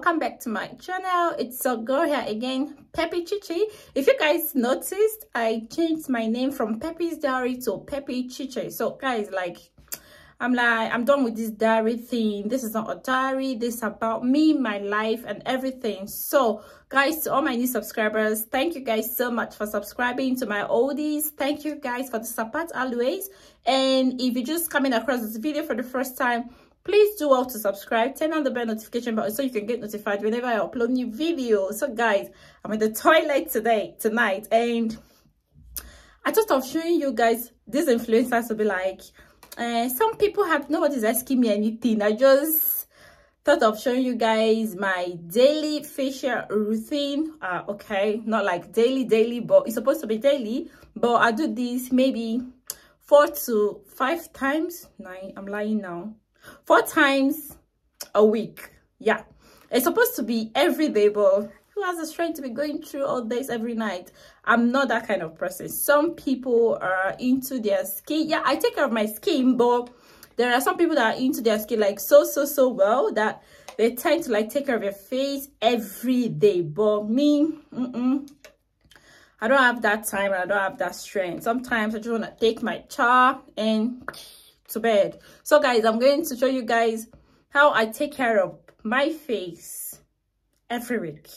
welcome back to my channel it's a girl here again peppy chichi if you guys noticed i changed my name from peppy's diary to peppy chichi so guys like i'm like i'm done with this diary thing this is not a diary this is about me my life and everything so guys to all my new subscribers thank you guys so much for subscribing to my oldies thank you guys for the support always and if you're just coming across this video for the first time please do all to subscribe turn on the bell notification button so you can get notified whenever i upload new videos so guys i'm in the toilet today tonight and i just of showing you guys these influencers to be like uh, some people have nobody's asking me anything i just thought of showing you guys my daily facial routine uh, okay not like daily daily but it's supposed to be daily but i do this maybe four to five times nine i'm lying now four times a week yeah it's supposed to be every day but who has the strength to be going through all this every night i'm not that kind of person some people are into their skin yeah i take care of my skin but there are some people that are into their skin like so so so well that they tend to like take care of your face every day but me mm -mm, i don't have that time and i don't have that strength sometimes i just want to take my char and to bed so guys i'm going to show you guys how i take care of my face every week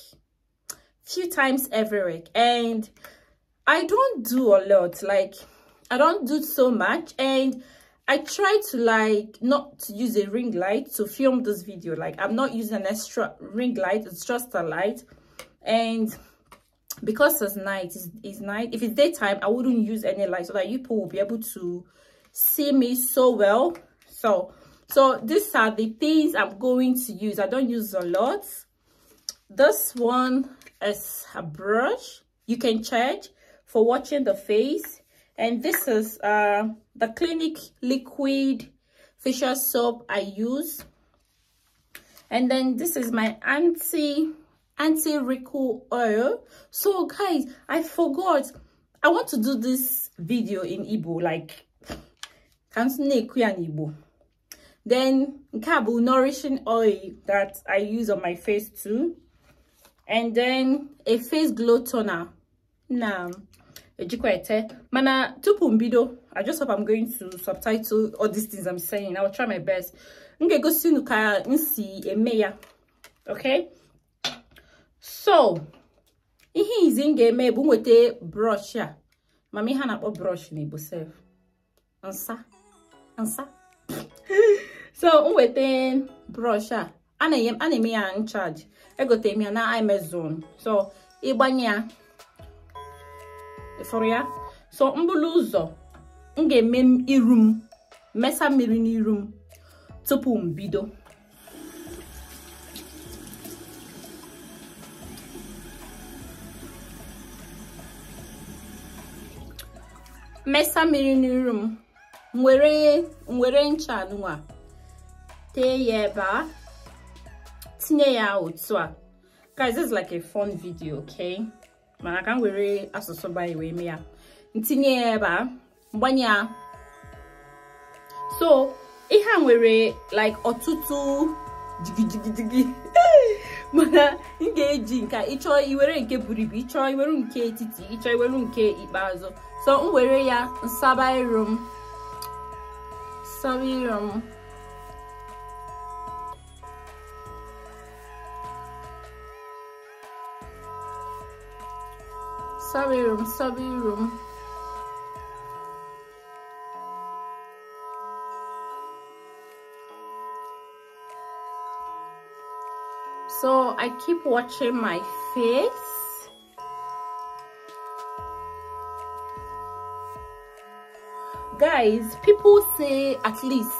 few times every week and i don't do a lot like i don't do so much and i try to like not to use a ring light to film this video like i'm not using an extra ring light it's just a light and because it's night it's, it's night if it's daytime i wouldn't use any light so that you people will be able to see me so well so so these are the things i'm going to use i don't use a lot this one is a brush you can charge for watching the face and this is uh the clinic liquid facial soap i use and then this is my anti anti wrinkle oil so guys i forgot i want to do this video in Igbo like then nke a nourishing oil that i use on my face too and then a face glow toner now mana tupu mbido i just hope i'm going to subtitle all these things i'm saying i'll try my best m ga-egosi unu eme ya okay so ihe izi m ga-eme bụ brush a mama ihe brush n'igbo nsa so m brọsh a a na-eme ya nchaji egotere m ya na amazon so ịgbanye ya ịfụrụ ya so mbụlụ ụzọ m ga-eme iru m mesa mmiri n'iru m tupu m bido mesa mmiri n'iru m nwere nwere ncha a tee ya ebe a tinye ya otu a guys this is like a fun video okay mana ka m were asụsụ bayi wee mee ya ntinye ya ebe a mgbanye ya so ihe a nwere like ọtụtụ jigijigidigi mana m ga-eji nka ịchọ iwere nke buru ibu ịchọ iwere nke etiti ịchọ iwere nke ikpeazụ so m were ya nsaba iru m Saviyorum. Saviyorum, saviyorum. So I keep watching my face. guys people say at least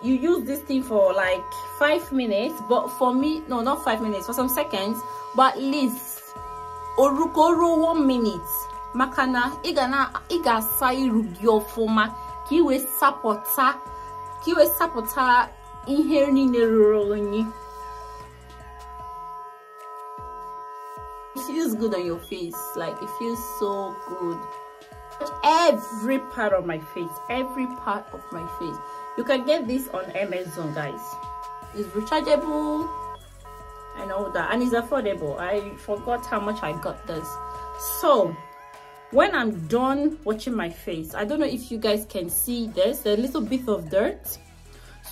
you use this thing for like five minutes but for me no not five minutes for some seconds but at least orukoro one minute Makana, igana, igasai rugiofoma. na i kiwe sapota iru gị ọfụma ka it feels good on your face like it feels so good every part of my face every part of my face you can get this on amazon guys it's rechargeable and all that and it's affordable i forgot how much i got this so when i'm done watching my face i don't know if you guys can see this a little bit of dirt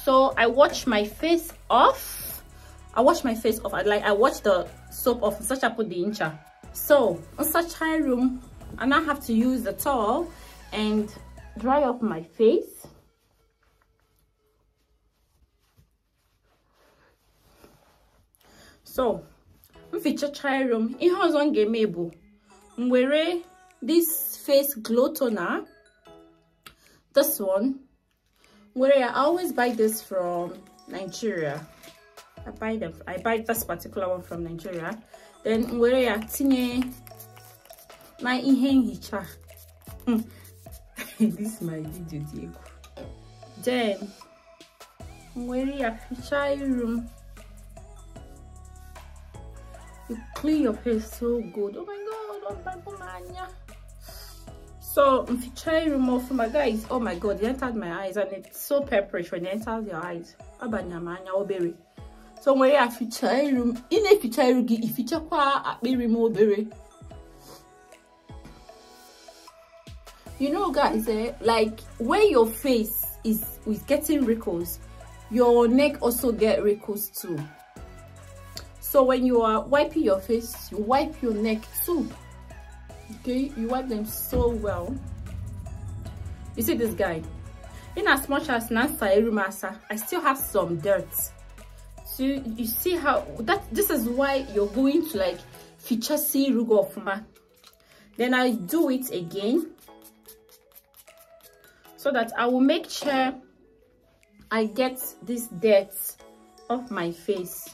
so i wash my face off i wash my face off I, like i wash the soap off such i put the incha so on such high room and I have to use the towel and dry off my face so mfichachaa rom room, it has one eme bụ this face glow toner this one where i always buy this from nigeria i buy them i buy this particular one from nigeria then where i tinye my ihe nhicha this my video diego. egwu then were ya ficha room? you clean your face so good oh my god oh my n'anya so m ficha iru m guys oh my god it entered my eyes and it's so purplish when it enters your eyes abanya m anya obere so nwere ya In iru m if you check out ifichakwa akpịrị m berry. you know guys eh, like where your face is is getting wrinkles your neck also get wrinkles too so when you are wiping your face you wipe your neck too okay you wipe them so well you see this guy in as much as Nansa I still have some dirt so you see how that this is why you're going to like feature see rugo of then I do it again so that i will make sure i get this dirt off my face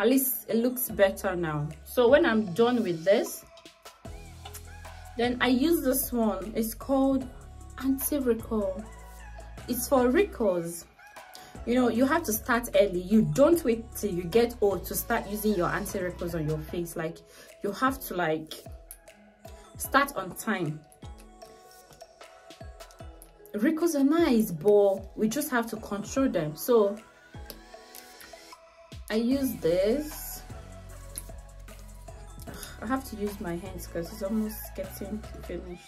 at least it looks better now so when i'm done with this then i use this one it's called anti-recall it's for recalls you know you have to start early you don't wait till you get old to start using your anti wrinkles on your face like you have to like start on time wrinkles are nice but we just have to control them so i use this i have to use my hands because it's almost getting finished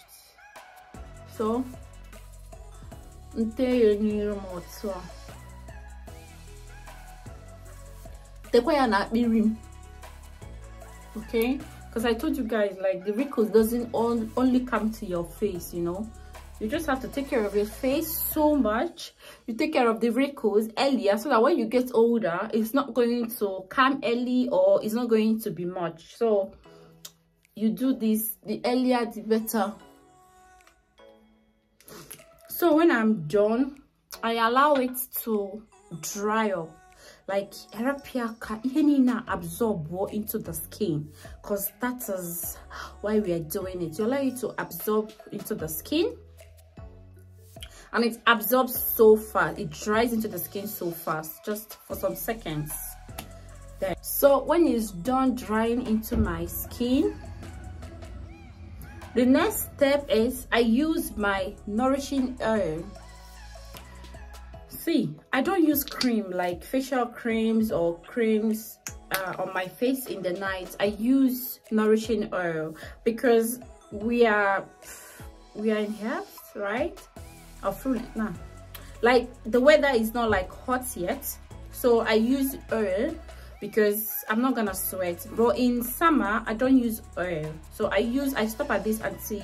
so until you need more okay because i told you guys like the wrinkles doesn't all, only come to your face you know you just have to take care of your face so much you take care of the wrinkles earlier so that when you get older it's not going to come early or it's not going to be much so you do this the earlier the better so when i'm done i allow it to dry up like Arapia Yenina absorb more into the skin because that is why we are doing it to allow you to absorb into the skin and it absorbs so fast it dries into the skin so fast just for some seconds there so when it's done drying into my skin the next step is i use my nourishing oil see i don't use cream like facial creams or creams uh, on my face in the night i use nourishing oil because we are we are in health right or full nah. like the weather is not like hot yet so i use oil because i'm not gonna sweat but in summer i don't use oil so i use i stop at this anti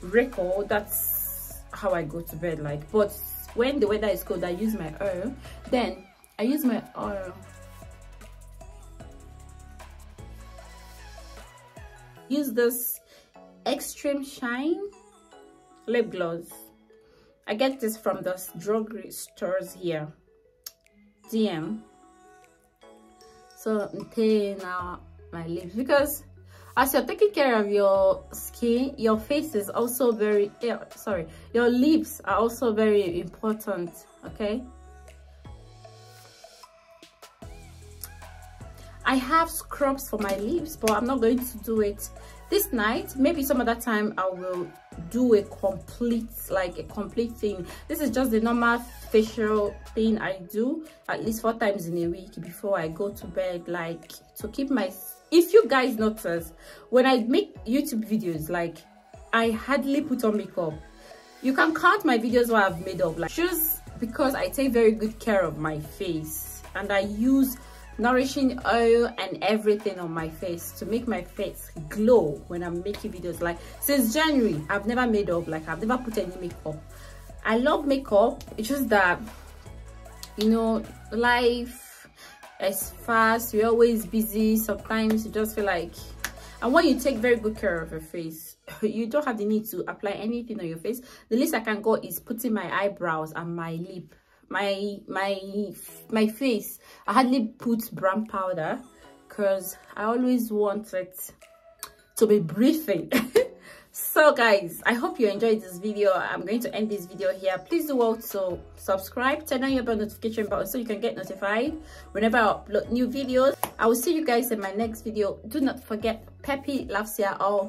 wrinkle that's how i go to bed like but when the weather is cold i use my oil then i use my oil use this extreme shine lip gloss i get this from those drugstore stores here dm so I'm taking out my lips because as you're taking care of your skin your face is also very eh, sorry your lips are also very important okay I have scrubs for my lips, but I'm not going to do it this night. Maybe some other time I will do a complete, like a complete thing. This is just the normal facial thing I do at least four times in a week before I go to bed, like to keep my if you guys notice when i make youtube videos like i hardly put on makeup you can count my videos where i've made up like shoes because i take very good care of my face and i use nourishing oil and everything on my face to make my face glow when i'm making videos like since january i've never made up like i've never put any makeup i love makeup it's just that you know life as fast you're always busy sometimes you just feel like and when you take very good care of your face you don't have the need to apply anything on your face the least i can go is putting my eyebrows and my lip my my my face i hardly put brown powder because i always want it to be breathing so guys i hope you enjoyed this video i'm going to end this video here please do also subscribe turn on your bell notification button so you can get notified whenever i upload new videos i will see you guys in my next video do not forget peppy loves you all